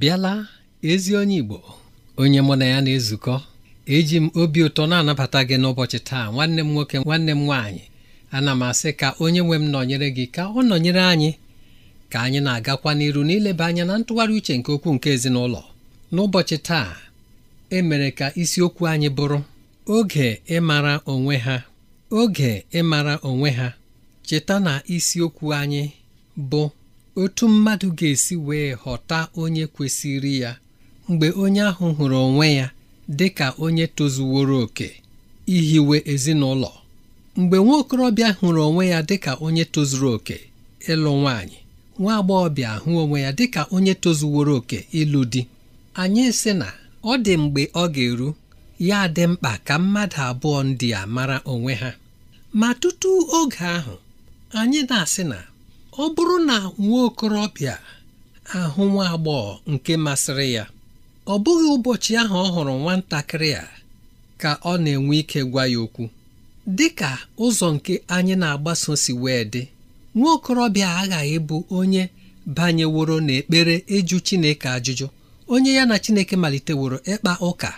bịala ezi onye Igbo onye mụ na ya na-ezukọ eji m obi ụtọ na-anabata gị n'ụbọchị taa nwanne m nwoke nwanne m nwaanyị ana m asị ka onye nwe m nọnyere gị ka ọ nọnyere anyị ka anyị na-agakwa n'iru n'ileba anya na ntụgharị uche nke okwu nke ezinụlọ n'ụbọchị taa emere ka isiokwu anyị bụrụ oge ịmara onwe ha oge ịmara onwe ha cheta na isiokwu anyị bụ otu mmadụ ga-esi wee ghọta onye kwesịrị ya mgbe onye ahụ hụrụ onwe ya dị ka onye tozuworo oke ihiwe ezinụlọ mgbe nwa okorobịa hụrụ onwe ya dị ka onye tozuru oke ịlụ nwaanyị nwa agbọghọbịa hụ onwe ya dị ka onye tozuworo oke ịlụ di anyị sị na ọ dị mgbe ọ ga-eru ya dị mkpa ka mmadụ abụọ ndị a mara onwe ha ma tutu oge ahụ anyị na-asị na ọ bụrụ na nwa okorobịa ahụ nwa agbọghọ nke masịrị ya ọ bụghị ụbọchị ahụ ọ hụrụ nwatakịrị a ka ọ na-enwe ike gwa ya okwu dị ka ụzọ nke anyị na-agbaso si wee dị nwa okorobịa aghaghị bụ onye banyeworo n'ekpere ịjụ Chineke ajụjụ onye ya na Chineke maliteworo ịkpa ụka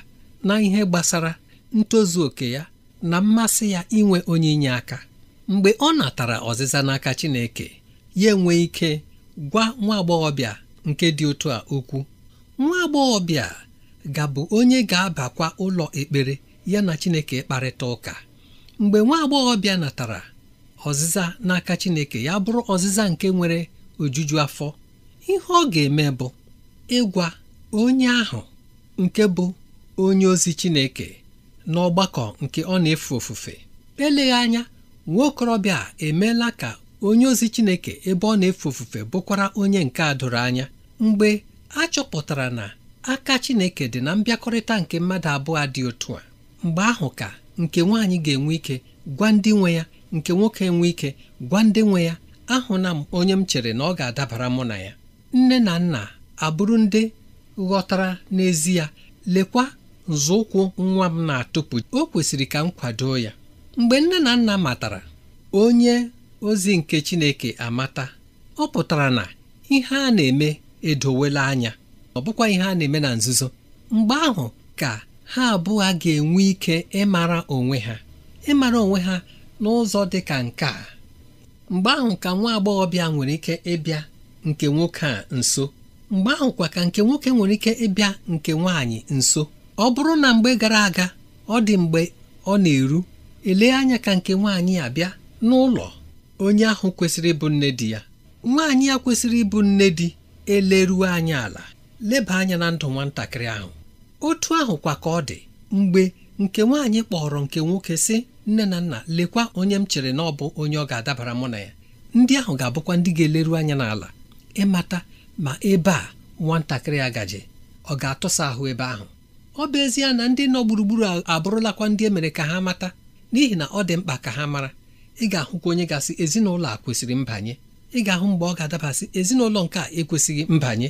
na ihe gbasara ntozu oke ya na mmasị ya inwe onye inye aka mgbe ọ natara ọzịza n'aka Chineke ya enwee ike gwa nwa agbọghọbịa nke dị otu a okwu nwa agbọghọbịa gabụ onye ga-abakwa ụlọ ekpere ya na Chineke kparịta ụka mgbe nwa agbọghọbịa natara ọzịza n'aka Chineke ya bụrụ ọzịza nke nwere ojuju afọ ihe ọ ga-eme bụ ịgwa onye ahụ nke bụ onye ozi Chineke n'ọgbakọ nke ọ na-efe ofufe eleghị anya nwa okorobịa emeela ka onye ozi Chineke ebe ọ na-efe ofufe bụkwara onye nke a doro anya mgbe a chọpụtara na aka Chineke dị na mbịakọrịta nke mmadụ abụọ dị otu a mgbe ahụ ka nke nwaanyị ga-enwe ike gwa ndị nwe ya nke nwoke enwe ike gwa ndị nwe ya ahụna m onye m chere na ọ ga-adabara mụ na ya nne na nna abụrụ ndị ghọtara n'ezie lekwa nzọụkwụ nwa m na-atụpụ o kwesịrị ka m kwado ya mgbe nne na nna matara onye ozi nke Chineke amata ọ pụtara na ihe a na-eme edowela anya ọ bụkwa ihe a na-eme na nzuzo mgbe ahụ ka ha abụọ ga-enwe ike ịmara onwe ha ịmara onwe ha n'ụzọ dị ka nke a mgbe ahụ ka nwa agbọghọbịa nwere ike ịbịa nke nwoke a nso mgbe ahụ kwa ka nke nwoke nwere ike ịbịa nke nwaanyị nso ọ bụrụ na mgbe gara aga ọ dị mgbe ọ na-eru ele anya ka nke nwaanyị abịa n'ụlọ onye ahụ kwesịrị ịbụ nne di ya nwaanyị ya kwesịrị ịbụ nne di eleruo anyị ala leba anya na ndụ nwatakịrị ahụ otu ahụ kwa ka ọ dị mgbe nke nwaanyị kpọrọ nke nwoke sị nne na nna lekwa onye m chere na ọ bụ onye ọ ga-adabara mụ na ya ndị ahụ ga-abụkwa ndị ga-eleru anya n'ala ịmata ma ebe a nwatakịrị a gaji ọ ga-atụsa ahụ ebe ahụ ọ bụ ezie na ndị nọ gburugburu abụrụlakwa ndị emere ka ha mata n'ihi na ọ dị mkpa ka ha mara ị ga-ahụkwa onye gasị ezinụlọ a kwesịrị mbanye ị ga-ahụ mgbe ọ ga-adabasị ezinụlọ nke a ekwesịghị mbanye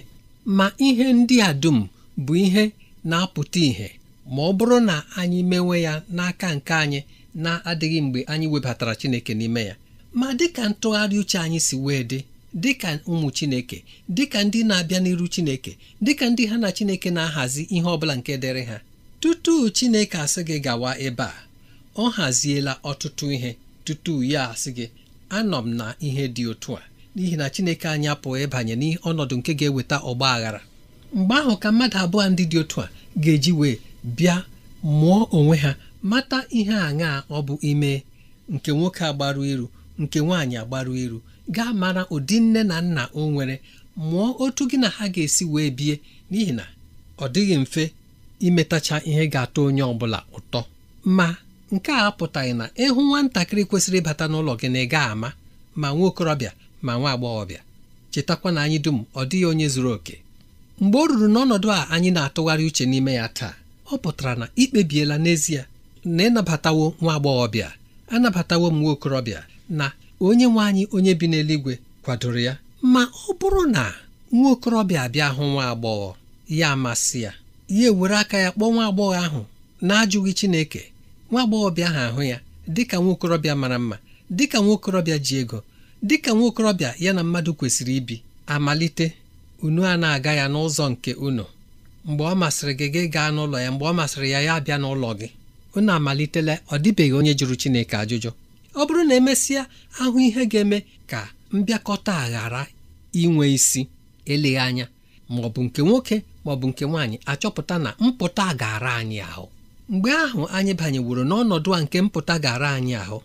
ma ihe ndị a dum bụ ihe na-apụta ìhè ma ọ bụrụ na anyị mewe ya n'aka nke anyị na-adịghị mgbe anyị webatara Chineke n'ime ya ma dịka ntụgharị uche anyị si wee dị dịka ụmụ Chineke dịka ndị na-abịa n'iru Chineke dịka ndị ha na Chineke na-ahazi ihe ọ bụla nke dịrị ha tutu Chineke asị gị gawa ebe a ọ haziela ọtụtụ ihe tutu ya asị gị anọ m na ihe dị otu a n'ihi na Chineke anyị pụọ ịbanye n'ọnọdụ nke ga-eweta ọgba aghara mgbe ahụ ka mmadụ abụọ ndị dị otu a ga-eji wee bịa mụọ onwe ha mata ihe aṅaa ọ bụ ime nke nwoke agbaru iru nke nwaanyị agbaru iru gaa mara ụdị nne na nna o nwere mụọ otu gị na ha ga-esi wee bie n'ihi na ọ dịghị mfe imetacha ihe ga-atọ onye ọ bụla ụtọ ma nke a apụtaghị na ịhụ nwatakịrị kwesịrị ịbata n'ụlọ gị na ị ga ama ma nwa okorobịa ma nwa agbọghọbịa chetakwa na anyị dum ọ dịghị onye zuru oke mgbe ọ ruru n'ọnọdụ a anyị na-atụgharị uche n'ime ya taa ọ pụtara na ikpebiela n'ezie na ịnabatawo nwa agbọghọbịa anabatawo m nwa okorobịa na onye nwe anyị onye bi n'eluigwe kwadoro ya ma ọ bụrụ na nwa okorobịa abịa hụ nwa agbọghọ ya amasị ya ya ewere aka ya kpọọ nwa agbọghọ ahụ na-ajụghị Chineke nwa agbọghọbịa ahụ ahụ ya dịka nwaokorobịa mara mma dịka nwaokorobịa ji ego dịka nwaokorobịa ya na mmadụ kwesịrị ibi amalite unu a na-aga ya n'ụzọ nke unu mgbe ọ masịrị gị gị gaa n'ụlọ ya mgbe ọ masịrị ya ya abịa n'ụlọ gị unu amalitela ọ dịbeghị onye jụrụ Chineke ajụjụ ọ bụrụ na emesịa ahụ ihe ga-eme ka mbịakọta ghara inwe isi eleghị anya ma ọ bụ nke nwoke ma nke nwaanyị achọpụta na mpụta gara anyị ahụ mgbe ahụ anyị banyeworo n'ọnọdụ a nke mpụta gara anyị ahụ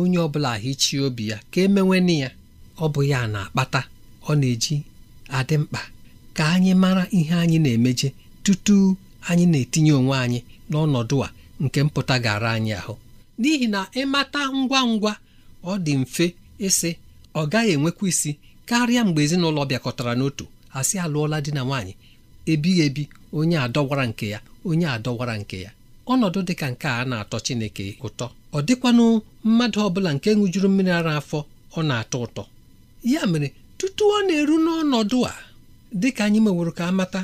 onye ọbụla bụla hichie obi ya ka emewene ya ọ bụ ya na-akpata ọ na-eji adị mkpa ka anyị mara ihe anyị na-emeje tutu anyị na-etinye onwe anyị n'ọnọdụ a nke mpụta gara anyị ahụ n'ihi na ịmata ngwa ngwa ọ dị mfe ịsị ọ gaghị enwekwa isi karịa mgbe ezinụlọ bịakọtara n'otu asị alụọla di na nwaanyị ebighị ebi onye adọwara nke ya onye adọwara nke ya ọnọdụ dị ka nke a na-atọ Chineke ụtọ ọ dịkwanụ mmadụ ọbụla nke ṅụjuru mmiri ara afọ ọ na-atọ ụtọ ya mere tutu ọ na-eru n'ọnọdụ a dị ka anyị meworo ka amata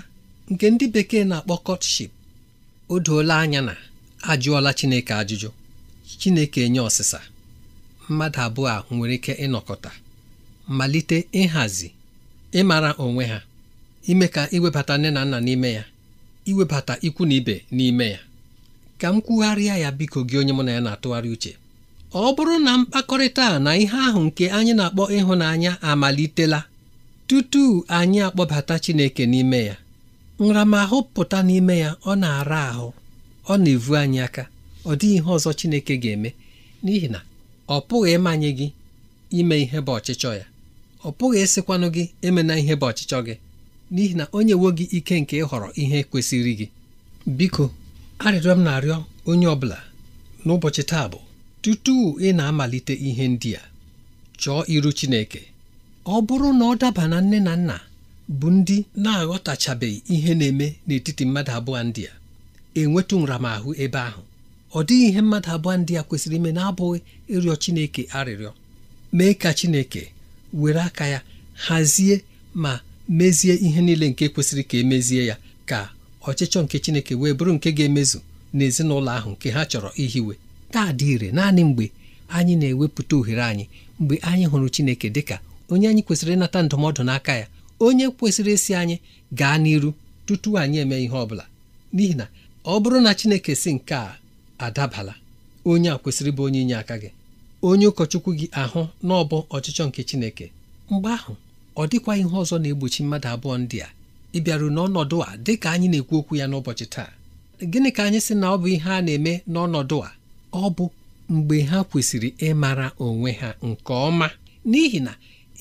nke ndị bekee na-akpọ kọtship o doola anya na ajụọla Chineke ajụjụ Chineke enye ọsịsa mmadụ abụọ a nwere ike ịnọkọta malite ịhazi ịmara onwe ha ime ka iwebata nne na nna n'ime ya iwebata ikwu na ibe n'ime ya ka m kwugharịa ya biko gị onye mụ na ya na-atụgharị uche ọ bụrụ na mkpakọrịta na ihe ahụ nke anyị na-akpọ ịhụnanya amalitela tutu anyị akpọbata Chineke n'ime ya nramahụ pụta n'ime ya ọ na-ara ahụ ọ na-evu anyị aka ọ dịghị ihe ọzọ Chineke ga-eme n'ihi na ọ pụghị ịmanye gị ime ihe bụ ọchịchọ ya ọ pụghị ịsịkwanụ gị emena ihe bụ ọchịchọ gị n'ihi na o nyewo gị ike nke ịhọrọ ihe kwesịrị gị biko arịrịọ m na-arịọ onye ọ bụla n'ụbọchị taa bụ tutu ị na-amalite ihe ndị a chọọ iru Chineke ọ bụrụ na ọ daba na nne na nna bụ ndị na-aghọtachabeghị ihe na-eme n'etiti mmadụ abụọ ndị a enwetụ nramahụ ebe ahụ ọ dịghị ihe mmadụ abụọ ndị a kwesịrị ime na-abụghị ịrịọ Chineke arịrịọ mee ka Chineke were aka ya hazie ma mezie ihe niile nke kwesịrị ka emezie ya ka ọchịchọ nke Chineke wee bụrụ nke ga-emezu n'ezinụlọ ahụ nke ha chọrọ ihiwe taa dị ire naanị mgbe anyị na-ewepụta ohere anyị mgbe anyị hụrụ Chineke dịka onye anyị kwesịrị ịnata ndụmọdụ n'aka ya onye kwesịrị isi anyị gaa n'iru tutu anyị eme ihe ọ bụla n'ihi na ọ bụrụ na Chineke si nke a adabala onye a kwesịrị bụ onye inye aka gị onye ụkọchukwu gị ahụ n'ọbọ ọchịchọ nke Chineke mgbe ahụ ọ dịkwa ihe ọzọ na-egbochi mmadụ abụọ ndị a ị bịaru n'ọnọdụ a dị ka anyị na-ekwu okwu ya n'ụbọchị taa gịnị ka anyị sị na ọ bụ ihe a na-eme n'ọnọdụ a ọ bụ mgbe ha kwesịrị ịmara onwe ha nke ọma n'ihi na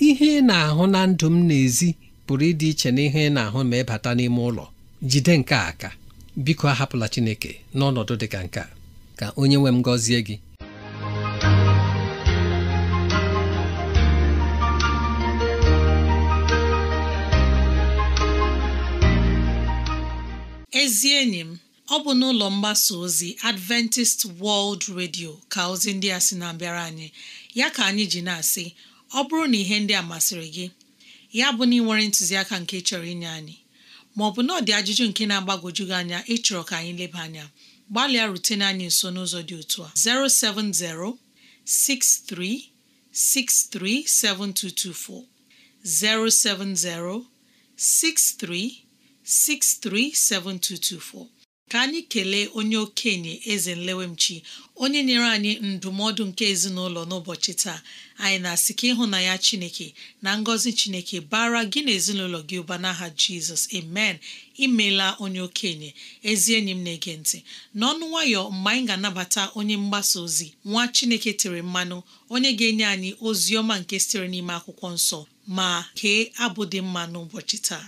ihe ị na-ahụ na ndụ m n'ezi pụrụ ịdị iche na ihe ị na-ahụ ma ịbata n'ime ụlọ jide nke aka biko ahapụla Chineke n'ọnọdụ dị ka nke a ka onye nwe m gọzie gị enyi m ọ bụ n'ụlọ mgbasa ozi Adventist World Radio ka ozi ndị a sị na-abịara anyị ya ka anyị ji na-asị ọ bụrụ na ihe ndị a masịrị gị ya bụ na ị nwere ntụziaka nke chọrọ inye anyị ma ọ bụ na ọ dị ajụjụ nke na-agbagwoju gị anya ịchọrọ ka anyị leba anya gbalịa rutene anyị nso n'ụzọ dị otu a 07063637224 07063 637224 ka anyị kelee onye okenye eze nlewemchi onye nyere anyị ndụmọdụ nke ezinụlọ n'ụbọchị taa anyị na-asị ka ịhụnanya chineke na ngọzi chineke bara gị na ezinụlọ gị ụba n'aha jizọs amen imela onye okenye ezi enyi m na-ege ntị n'ọnụ nwayọ mgbe anyị ga-anabata onye mgbasa ozi nwa chineke tere mmanụ onye ga-enye anyị ozi ọma nke sitere n'ime akwụkwọ nsọ ma kee abụ dị mma n'ụbọchị taa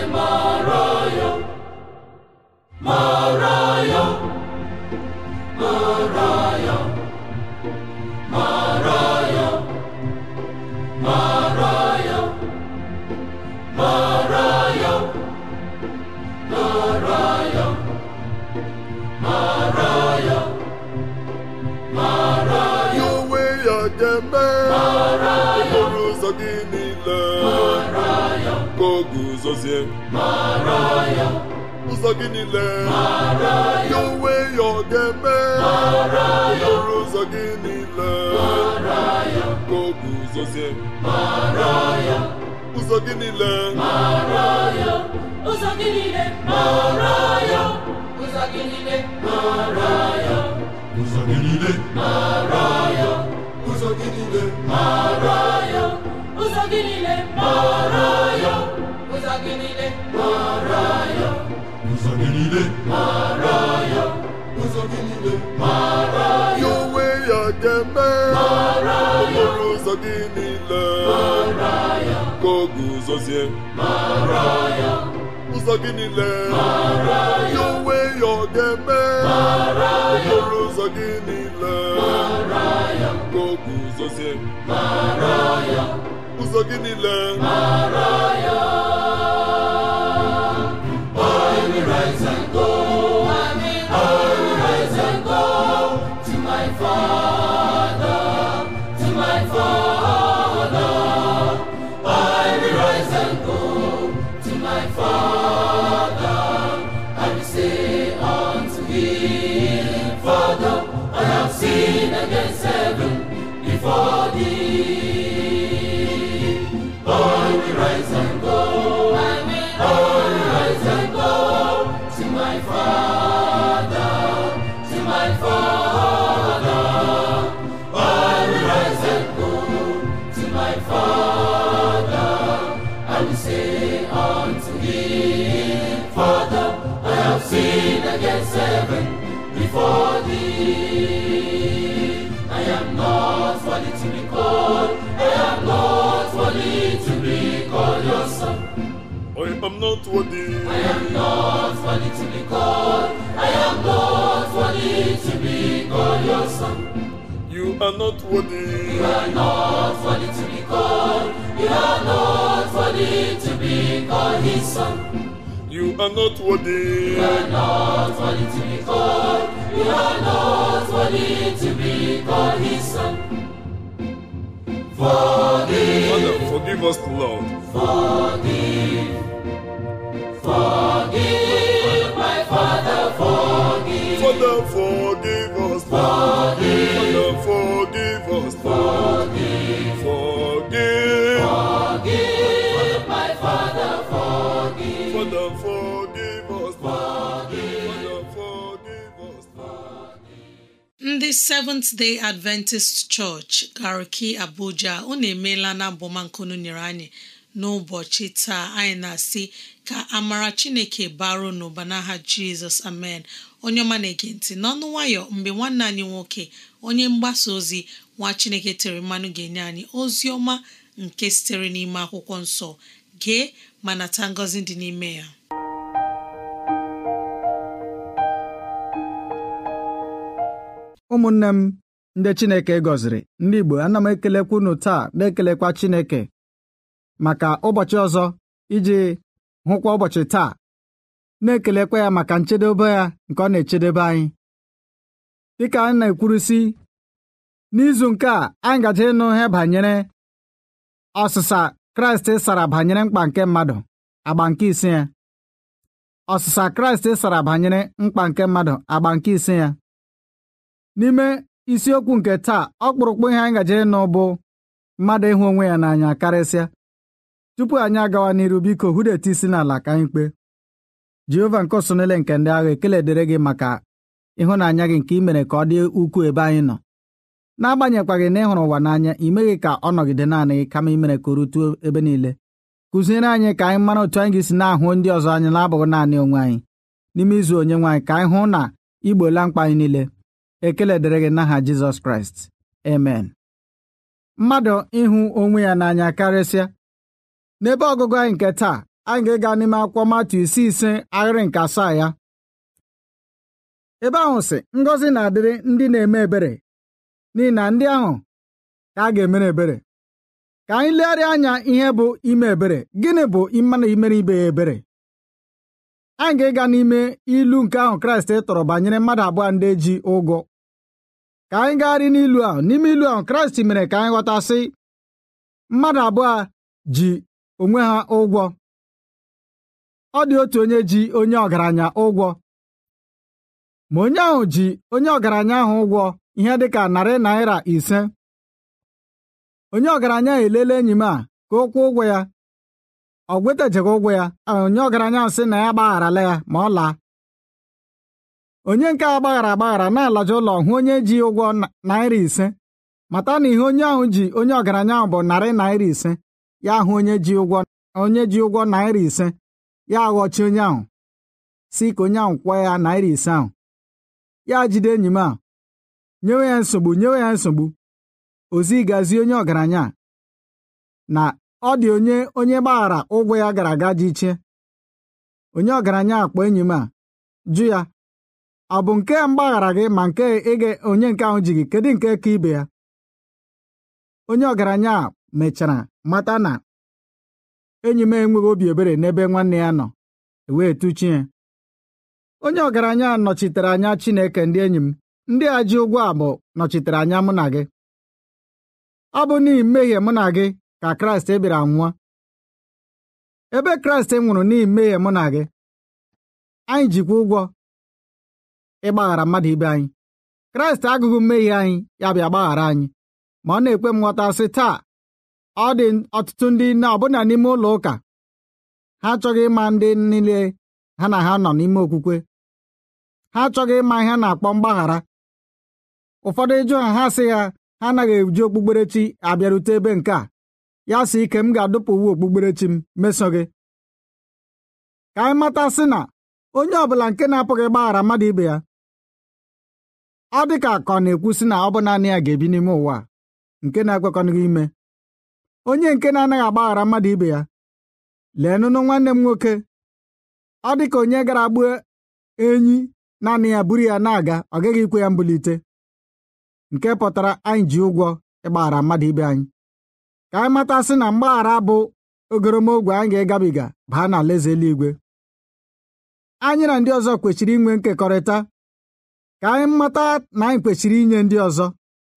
n'ezie ụzọ gị niile ya onwe ya ọ ga-eme ọrụ ụzọ gị niile ka o guzozie ụzọ gị niile ụzọ gị niile ụzọ gị niile ụzọ gị niile ụzọ gị niile niile mara ya ụzọ gị niile mara ya onwe ya ga-eme mara ya okporo ụzọ gị niile mara ya ka ọ guzozie mara ya ụzọ gị niile mara ya onwe ya ọ ga-eme mara ya okporo ụzọ gị niile mara ya ka ọ guzozie mara ya ụzọ gị niile mara ya forgive, Father. not worthy. I am not worthy to be called. I am not worthy to be called your son. You are not worthy. You are not worthy to be called. You are not worthy to be called his son. You are not worthy. You are not worthy to be called. You are not worthy to be called his son. Forgive. Father, forgive us, Lord. Forgive. Forgive my Father, forgive. Father, forgive us. Forgive. Father, forgive us. Forgive. Forgive. my Father, forgive. Father, forgive us. Forgive. forgive Forgive. Ndị Seventh Day Adventist Church Gariki Abuja unu emeela na abụmankunu nyere anyị n'ụbọchị taa anyị na-asị ka amara chineke baro n'ụba n'aha jizọs amen onye ọma na-ege ntị n'ọnụ nwayọ mgbe nwanne anyị nwoke onye mgbasa ozi nwa chineke tere mmanụ ga-enye anyị ozi ọma nke sitere n'ime akwụkwọ nsọ gee ma nata ngọzi dị n'ime ya ụmụnne m ndị chineke gọziri ndị igbo ana m ekelekwa unu taa na-ekelekwa chineke maka ụbọchị ọzọ iji hụkwa ụbọchị taa na-ekelekwa ya maka nchedobe ya nke ọ na-echedebe anyị dịka anyị na-ekwurusi n'izu nke a anyị gaje ịnụ ihe banyere ọsịsa kraịst e sara banyere mkpa nke mmadụ agba nke ise ya ọsịsa kraịst e sara banyere mkpa nke mmadụ agba nke isi ya n'ime isiokwu nke taa ọkpụrụkpụ ihe anyị gaje ịnụ bụ mmadụ ịhụ onwe ya n'anya karịsịa tupu anyị agawa n'iru biko hudeta isi n'ala ka anyị kpe Jehova nke osonele nke ndị agha ekele dịrị gị maka ịhụnanya gị nke imere mere ka ọ dị ukwuu ebe anyị nọ n'agbanyekwaghị na ịhụrụ ụwa n'anya imeghị ka ọ nọgide naanị gị kama imere ka o rutuo ebe niile kụziere anyị ka anyị mara otu anyị ga-esi na-ahụ ndị ọzọ anyị na-abụghị naanị onwe anyị n'ime izu onye nwaanyị ka anyị hụ na igbola mkpa anyị niile ekele dịrị gị n'aha Jizọs Kraịst amen mmadụ ịhụ onwe ya n'anya karịsịa n'ebe ọgụgụ anyị nke taa anyị ga-ịga n'ime akwụkwọ matu isi ise ahịrị nke asaa ya ebe ahụ si ngọzi na-adịrị ndị na-eme ebere n'ihi na ndị ahụ ka a ga-emere ebere ka anyị legharịa anya ihe bụ ime ebere gịnị bụ mmanụ imere ibe ya ebere anyị ga-ịga n'ime ilu nke ahụ kraịst tọrọ banyere mmadụ abụọ ndị ji ụgwọ ka anyị gagharị n'ilu ahụ n'ime ilu ahụ kraịst mere ka anyị ghọtasị mmadụ abụọ ji onwe ha ụgwọ ọ dị otu onye ji onye ọgaranya ụgwọ ma onye ahụ ji onye ọgaranya ahụ ụgwọ ihe dịka narị naira ise onye ọgaranya elele enyi m a ka ọ kwụọ ụgwọ ya ọ gwetajeghị ụgwọ ya onye ọgaranya ahụ sị na ya gbagharala ya ma ọ laa onye nke a gbaghara agbaghara na-alaja ụlọ hụ onye ji ụgwọ naira ise mata na ihe onye ahụ ji onye ọgaranya ahụ bụ narị naira ise ya hụ onye ji ụgwọ onye ji naira ise ya aghọchi onye ahụ si ka onye ahụ kwụọ ya naira ise ahụ ya jide enyi m a nyewe ya nsogbu nyewe ya nsogbu ozi gazi onye ọgaranya na ọ dị onye onye gbaghara ụgwọ ya gara aga ji iche onye ọgaranya akpọ enyi m a jụ ya ọ bụ nke mgbaghara gị ma nke ịga onye nke ahụ ji gị kedu nke ka ibe ya onye ọgaranya mechara mata na enyi m enweghị obi ebere n'ebe nwanne ya nọ e wee ya onye ọgaranya nọchitere anya Chineke ndị enyi m ndị a ji ụgwọ abụ nọchitere anya mụ na gị ọ bụ n'ihi mmehie mụ na gị ka Kraịst e bịara nwụọ ebe Kraịst e nwụrụ n'ihi mmehie mụ na gị anyị jikwa ụgwọ ịgbaghara mmadụ ibe anyị Kraịst agụghị mmehie anyị ya bịa gbaghara anyị ma ọ na-ekwe m nghọta sị taa ọ dị ọtụtụ ndị nne ọbụna n'ime ụlọ ụka ha achọghị ịma ndị niile ha na ha nọ n'ime okwukwe ha achọghị ịma ihe na-akpọ mgbaghara ụfọdụ ịjụ ha ha sị ha ha anaghị eji okpukperechi abịarute ebe nke a ya sị ike m ga-adụpụ uwe okpukperechi m meso gị ka anyị mata sị na onye ọbụla nke na-apụghị gbaghara mmadụ ibe ya ọ dị ka akọ ọ na-ekwu sị na ọ bụ naanị ya ga-ebi n'ime ụwa nke na-ekwekọnịghị ime onye nke na-anaghị agbaghara mmadụ ibe ya leenụnụ nwanne m nwoke ọ dị ka onye gara gbuo enyi naanị ya buru ya na-aga ọ gaghị ikwe ya mbulite nke pụtara anyị ji ụgwọ ịgbaghara mmadụ ibe anyị ka anyị matasị na mgbaghara bụ ogoromogwe anyị ga-ịgabiga baa na alaeze eluigwe anyị na ndị ọzọ kwechiri inwe nkekọrịta ka anyị mata na anyị kwechiri inye ndị ọzọ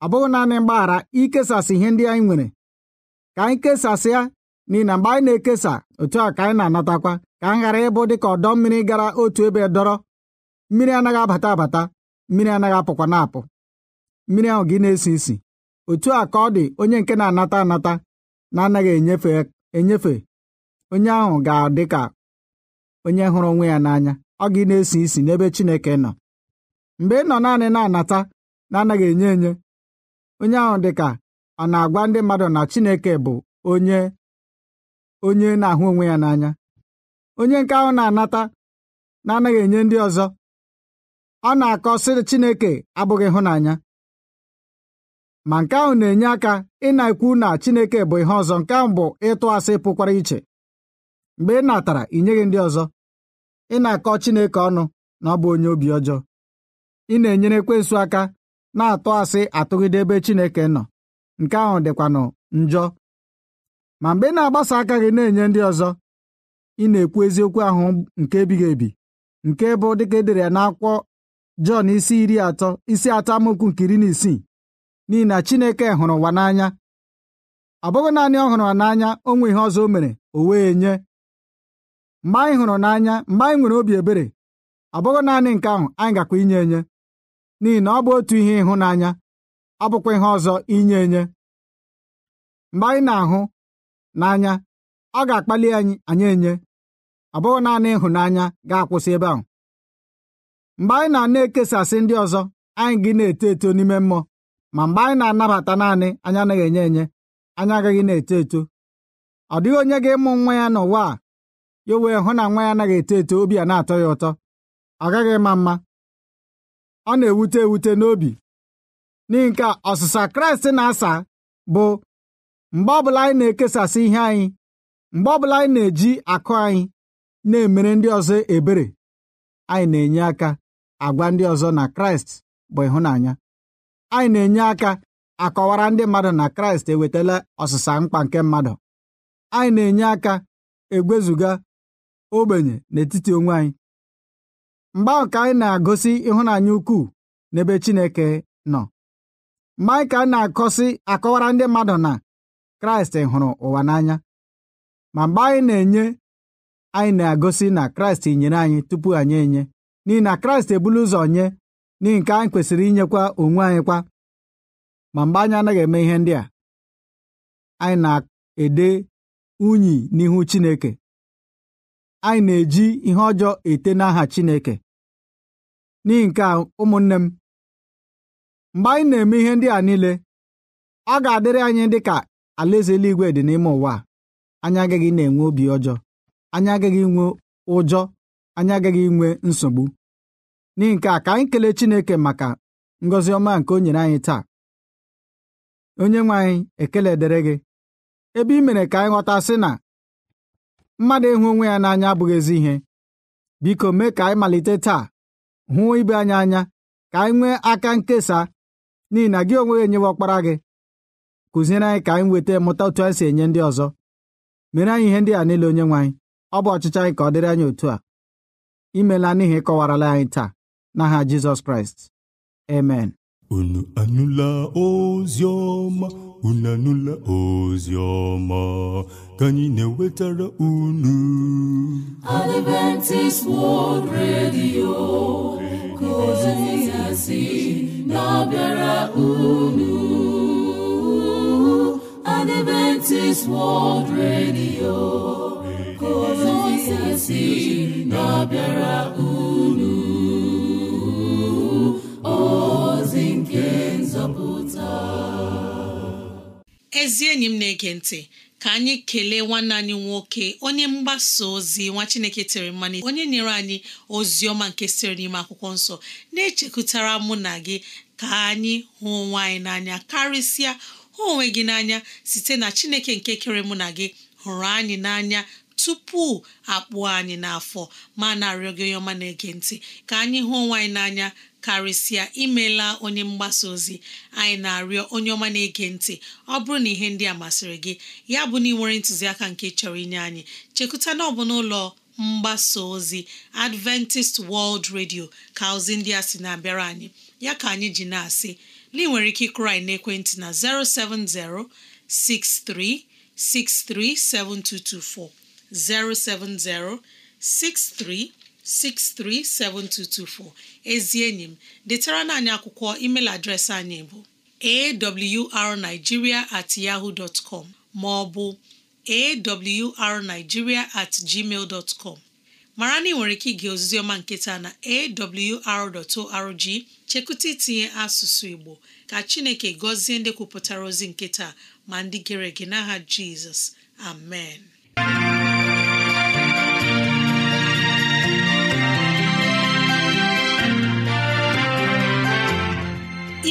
ọ bụghị naanị mgbaghara ikesasị ihe ndị anyị nwere ka anyị kesasịa n'ihi na mgbe anyị na-ekesa otu a ka anyị na-anatakwa ka anyị ghara ịbụ dịka ọdọ mmiri gara otu ebe dọrọ mmiri anaghị abata abata mmiri anaghị apụkwa na-apụ mmiri ahụ gị na-esi isi otu a ka ọ dị onye nke na-anata anata na-anaghị enyefe enyefe onye ahụ ga-adị ka onye hụrụ onwe ya n'anya ọ gị na-esi isi n'ebe Chineke nọ mgbe ị nọ naanị na-anata na-anaghị enye enye onye ahụ dị ka a na-agwa ndị mmadụ na Chineke bụ onye onye na-ahụ onwe ya n'anya onye nke ahụ na-anata na-anaghị enye ndị ọzọ ọ na-akọ sị Chineke abụghị ịhụnanya ma nke ahụ na-enye aka ị na-ekwu na Chineke bụ ihe ọzọ nke ahụ bụ ịtụ asị pụkwara iche mgbe ị natara ị nyeghị ndị ọzọ ị na-akọ Chineke ọnụ na ọ bụ onye obi ọjọọ ị na-enyere ekwensu aka na-atụ asị atụgide ebe Chineke nọ nke ahụ dịkwanụ njọ ma mgbe ị na-agbasa aka gị na-enye ndị ọzọ ị na-ekwu eziokwu ahụ nke ebighị ebi nke bụ dịka edere ya n'akwọ Jọn isi iri atọ isi atọ amaokwu nke iri na isii n'ihi na Chineke hụrụ ụwa n'anya ọ bụghị naanị ọ hụrụ n'anya onwe ihe ọzọ o mere o wee nye mgbe anyị hụrụ n'anya mgbe anyị nwere obi ebere ọ bụghị naanị nke ahụ anyị gakwa inye enye n'ihi na ọ bụ otu ihe ịhụnanya bụkwa ihe ọzọ inye enye mgbe anyị na-ahụ n'anya ọ ga-akpali anyị anyị enye ọ bụghị naanị ịhụnanya ga-akwụsị ebe ahụ mgbe anyị na-ana ekesasị ndị ọzọ anyị gị na-eto eto n'ime mmụọ ma mgbe anyị na-anabata naanị anyị anaghị enye enye anyị agaghị na-eto eto ọ dịghị onye ga-ịmụ nwa ya n'ụwa a ya wee hụ na nwa ya anaghị eto eto obi a na-atọ ya ụtọ ọ gaghị ịma mma ọ na-ewute ewute n'obi n'ihi nke ọsịsa kraịst na-asa bụ mgbe ọbụla anyị na-ekesasị ihe anyị mgbe ọbụla anyị na-eji akụ anyị na-emere ndị ọzọ ebere anyị na-enye aka agwa ndị ọzọ na kraịst bụ ịhụnanya anyị na-enye aka akọwara ndị mmadụ na kraịst ewetala ọsịsa mkpa nke mmadụ anyị na-enye aka egwezuga ogbenye n'etiti onwe anyị mgbe ahụ ka anyị na-agosi ịhụnanya ukwuu n'ebe Chineke nọ maịka na-akọsi akọwara ndị mmadụ na kraịst hụrụ ụwa n'anya ma mgbe anyị na-enye anyị na-agosi na kraịst nyere anyị tupu anyị enye n'ihi na kraịst ebulu ụzọ nye n'ihi nke anyị kwesịrị inyekwa onwe anyị kwa ma mgbe anyị anaghị eme ihe ndị a anyị na-ede unyi n'ihu chineke anyị na-eji ihe ọjọọ ete n'aha chineke n'ihi nke a ụmụnne m mgbe anyị na-eme ihe ndị a niile ọ ga-adịrị anyị dị ka alaeze eluigwe dị n'ime ụwa anyị agaghị na-enwe obi ọjọọ anyị agaghị inwe ụjọ anyị agaghị inwe nsogbu n'ihi nke a ka anyị kelee Chineke maka ngozi ọma nke o nyere anyị taa onye nwe anyị ekele dere gị ebe ị mere ka anyị ghọta sị na mmadụ ịhụ onwe ya n'anya abụghị ezi ihe biko mee ka anyị malite taa hụ ibe anyị anya ka anyị nwee aka nkesa n'ihi na gị onwe gị enyewe ọkpara gị kụziere anyị ka anyị nweta mụta otu anyị si enye ndị ọzọ mere anyị ihe ndị a niile onye nwe anyị ọ bụ ọchịchọ anyị ka ọ dịrị anyị otu a imela n'ihi ịkọwarala anyị taa n'aha Jizọs Kraịst amen unu anụla ozi ọma unu anụla ozi ọma ka anyị na-ewetara unu Adventist World Radio ozizi na-abịara unu Adventist World Radio ka ozizi na-abịara unu ọzi nke nzọpụta ezi enyi m na-ege ntị ka anyị kelee nwanne anyị nwoke onye mgbasa ozi nwa Chineke tere mmanụ onye nyere anyị ozi ọma nke siri n'ime akwụkwọ nsọ na-echekwutara mụ na gị ka anyị hụ onwe anyị n'anya karịsịa hụ onwe gị n'anya site na Chineke nke kere mụ na gị hụrụ anyị n'anya tupu akpụọ anyị n'afọ ma na-arịọ gị onye ọma na-ege ntị ka anyị hụ onwe n'anya karịsịa imela onye mgbasa ozi anyị na-arịọ onye ọma na-ege ntị ọ bụrụ na ihe ndị a masịrị gị ya bụ na ị nwere ntụziaka nke chọrọ inye anyị chekụta na ọ bụ n'ụlọ mgbasa ozi Adventist World Radio ka ozi ndị a sị na-abịara anyị ya ka anyị ji na-asị na ị nwere ike krai anyị n'ekwentị na 070 7224 070 63 637224 ezi enyi m detara anyị akwụkwọ email adreesị anyị bụ arigiria at yaho maọbụ ma ọ bụ at gmail dtcom mara na ị nwere ike ige ozizi ọma nketa na awr.org chekwụta itinye asụsụ Igbo ka Chineke gọzie ndị kwupụtara ozi nketa ma ndị gere ege n'aha Jizọs amen